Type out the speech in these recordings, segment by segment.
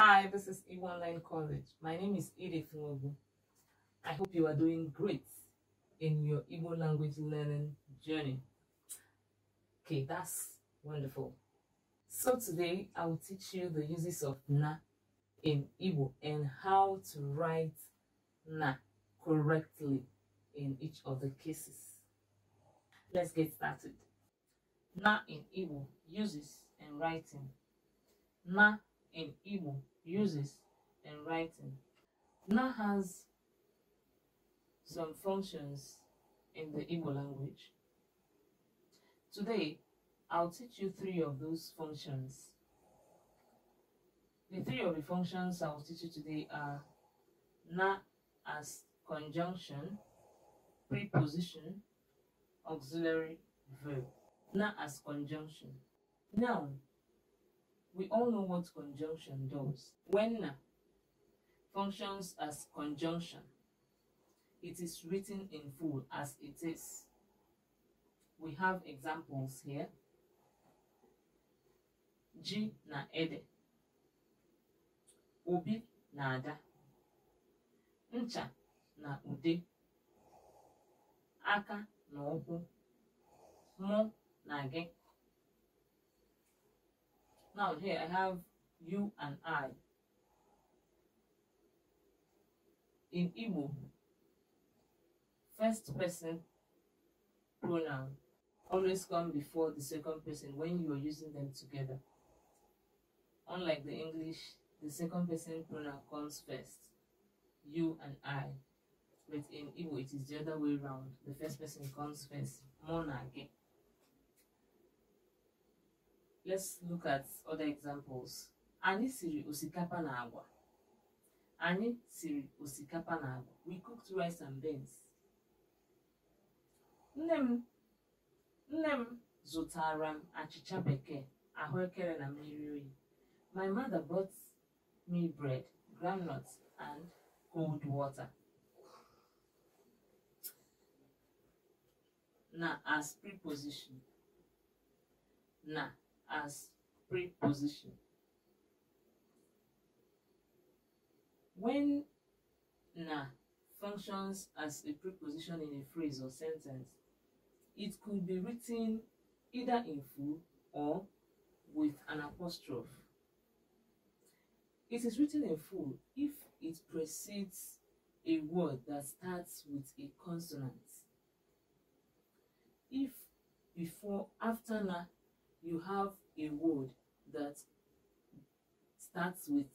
Hi, this is E Online College. My name is Edith Nwogu. I hope you are doing great in your Igbo language learning journey. Okay, that's wonderful. So today I will teach you the uses of na in Igbo and how to write na correctly in each of the cases. Let's get started. Na in Igbo uses and writing. Na in Igbo uses in writing now has some functions in the Igbo language. Today, I'll teach you three of those functions. The three of the functions I will teach you today are na as conjunction, preposition, auxiliary verb. Na as conjunction. Noun We all know what conjunction does. When na functions as conjunction, it is written in full as it is. We have examples here. G na ede. Obi na ada. Ncha na ude. Aka na ụkwụ. Mụ na gị. Now here I have you and I. In Igbo, first person pronoun always come before the second person when you are using them together. Unlike the English, the second person pronoun comes first, you and I. But in Igbo, it is the other way around. The first person comes first, mona again let's look at other examples anyị siri osikapa na agwa anyị siri osikapa na agwa we cooked rice and beans nne m nne m zụtara m achịcha bekee ahụekere na mmiri oyi my mother bought me bread groundnuts and cold water na as preposition na as preposition. When na functions as a preposition in a phrase or sentence, it could be written either in full or with an apostrophe. It is written in full if it precedes a word that starts with a consonant. If before after na you have a word that starts with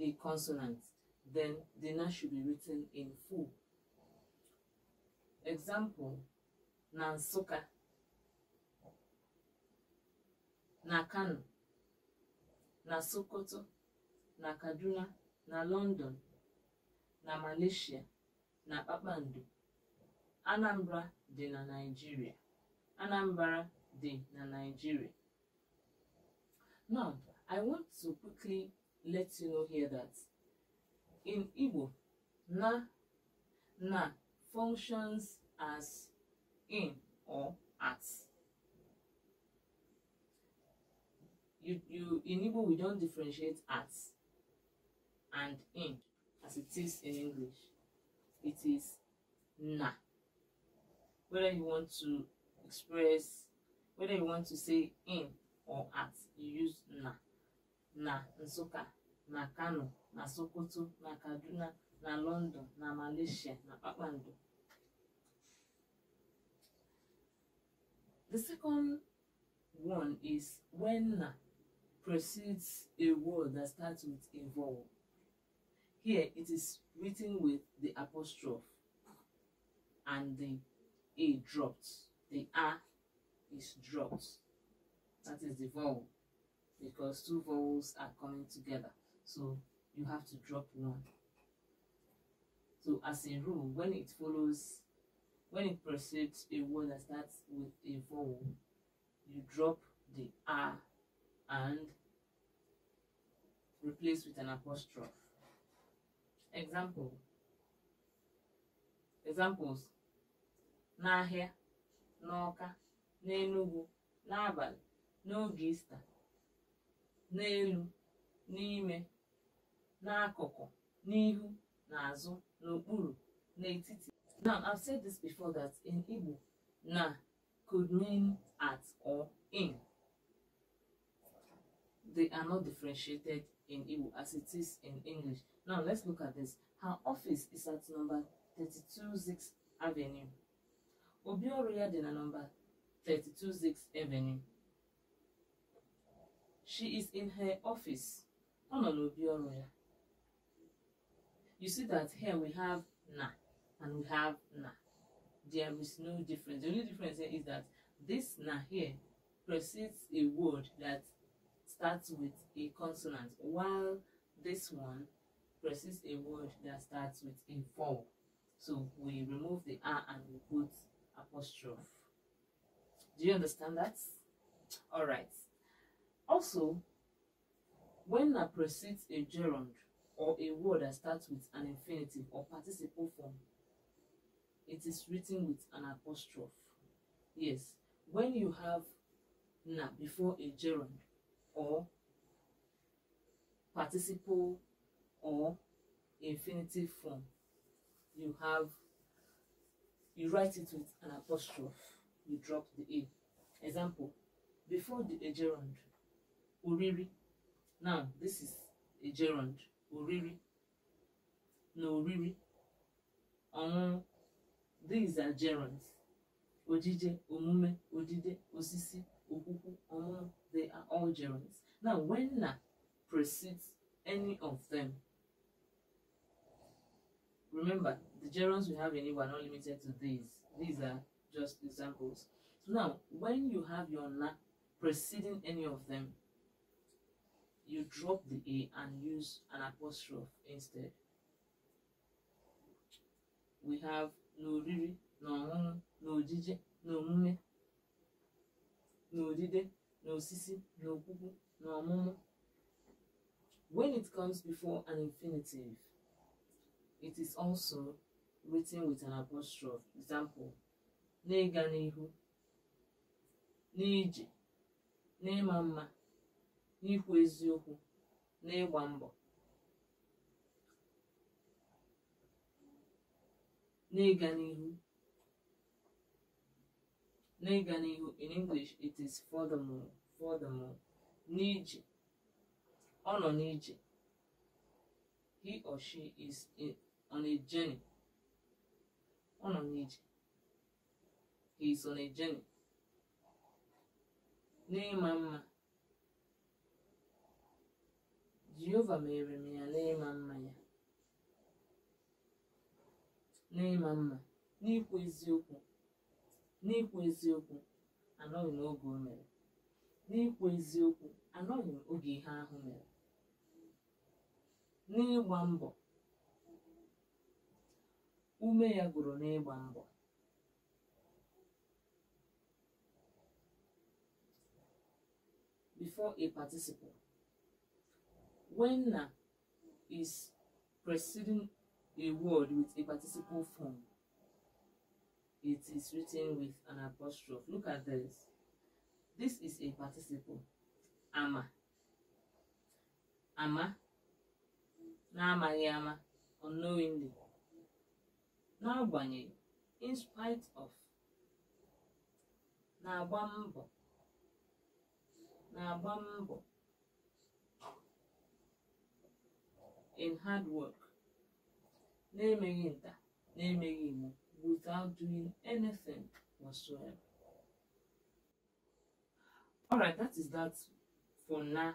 a consonant, then the noun should be written in full. Example, Nansoka, Nakano, Nasokoto, Nakaduna, na London, na Malaysia, na Kpakpando. Anambra dị na Nigeria. Anambra dị na Nigeria. Now, I want to quickly let you know here that in Igbo, na na functions as in or at. You, you, in Igbo, we don't differentiate at and in as it is in English. It is na. Whether you want to express whether you want to say in or at you use na na nsukka na kano na sokoto na kaduna na london na malaysia na kpakpando the second one is when na precedes a word that starts with a vowel here it is written with the apostrophe and the a dropped the a is dropped. That is the vowel because two vowels are coming together. So you have to drop one. So as a rule, when it follows, when it precedes a word that starts with a vowel, you drop the R and replace with an apostrophe. Example. Examples. N'ahịa, n'ọka, n'enugwu n'abalị n'oge ista n'elu n'ime n'akụkụ n'ihu n'azụ n'okpuru n'etiti now i've said this before that in igbo na could mean at or in they are not differentiated in igbo as it is in english now let's look at this her office is at number 326 avenue obi ọrụ ya dị na number 32 Zix Avenue. She is in her office. You see that here we have na and we have na. There is no difference. The only difference here is that this na here precedes a word that starts with a consonant, while this one precedes a word that starts with a vowel. So we remove the r and we put apostrophe. Do you understand that? All right. Also, when I precedes a gerund or a word that starts with an infinitive or participle form, it is written with an apostrophe. Yes, when you have na before a gerund or participle or infinitive form, you have you write it with an apostrophe you drop the A. Example, before the a gerund, uriri. Now, this is a gerund, uriri. No, oriri. Um, these are gerunds. Ojije, omume, odide, osisi, okuku, omumu, they are all gerunds. Now, when na precedes any of them, remember, the gerunds we have in Igbo are not limited to these. These are just examples. So now, when you have your na preceding any of them, you drop the A and use an apostrophe instead. We have no riri, no munu, no jije, no mume, no dide, no sisi, no kuku, no mumu. When it comes before an infinitive, it is also written with an apostrophe. Example, n'ịga n'ihu n'ije n'ịma mma n'ikwu eziokwu n'ịgba mbọ n'ịga n'ihu n'ịga n'ihu in english it is furthermore furthermore n'ije ọ nọ n'ije he or she is on a journey ọ nọ n'ije he na on n'ịma mma jehova mere m ya n'ịma mma ya n'ịma mma n'ikwu eziokwu n'ikwu eziokwu anọghị m oge o mere n'ikwu eziokwu anọghị m oge ihe ahụ mere n'ịgba mbọ ume ya gụrụ n'ịgba mbọ before a participle, When na is preceding a word with a participle form, it is written with an apostrophe. Look at this. This is a participle. Ama. Ama. N'amaghị ama, unknowingly. N'agbanyeghị, in spite of. Na-agba mbọ. Nabambo in hard work, na-emeghị nta, na-emeghị without doing anything whatsoever. Alright, that is that for now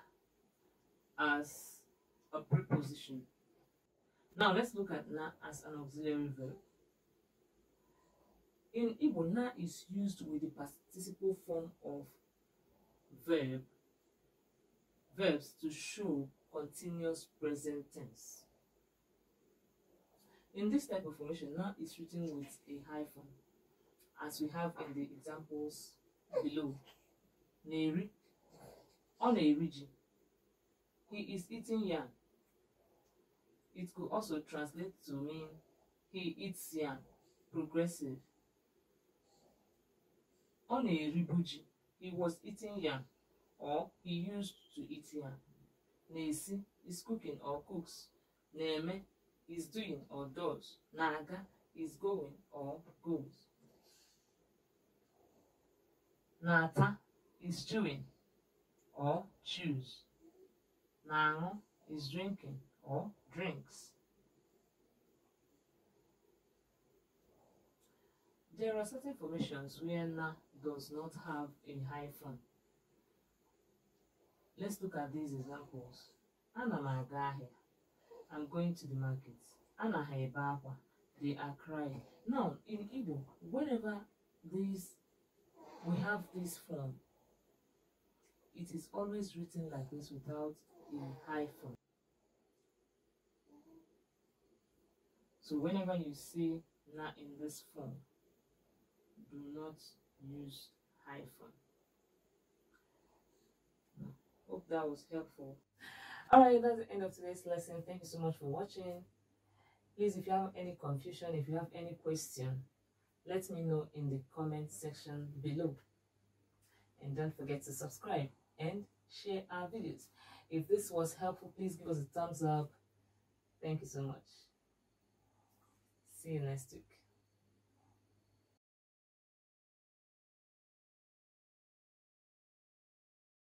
as a preposition. Now let's look at na as an auxiliary verb. In Igbo, na is used with the participle form of verb verbs to show continuous present tense. In this type of formation, now is written with a hyphen, as we have in the examples below. Neri, on a region. He is eating yam. It could also translate to mean he eats yam, progressive. On a ribuji, he was eating yam, or he used to eat here. na is cooking or cooks. Neme is doing or does. Naga is going or goes. Nata is chewing or chews. na is drinking or drinks. There are certain formations where na does not have a hyphen. Let's look at these examples. Ana m aga ahịa. I'm going to the market. Ana ha ebe akwa. They are crying. Now, in Igbo, whenever this we have this form, it is always written like this without a hyphen. So whenever you see na in this form, do not use hyphen. Hope that was helpful. Alright, that's the end of today's lesson. Thank you so much for watching. Please, if you have any confusion, if you have any question, let me know in the comment section below. And don't forget to subscribe and share our videos. If this was helpful, please give us a thumbs up. Thank you so much. See you next week.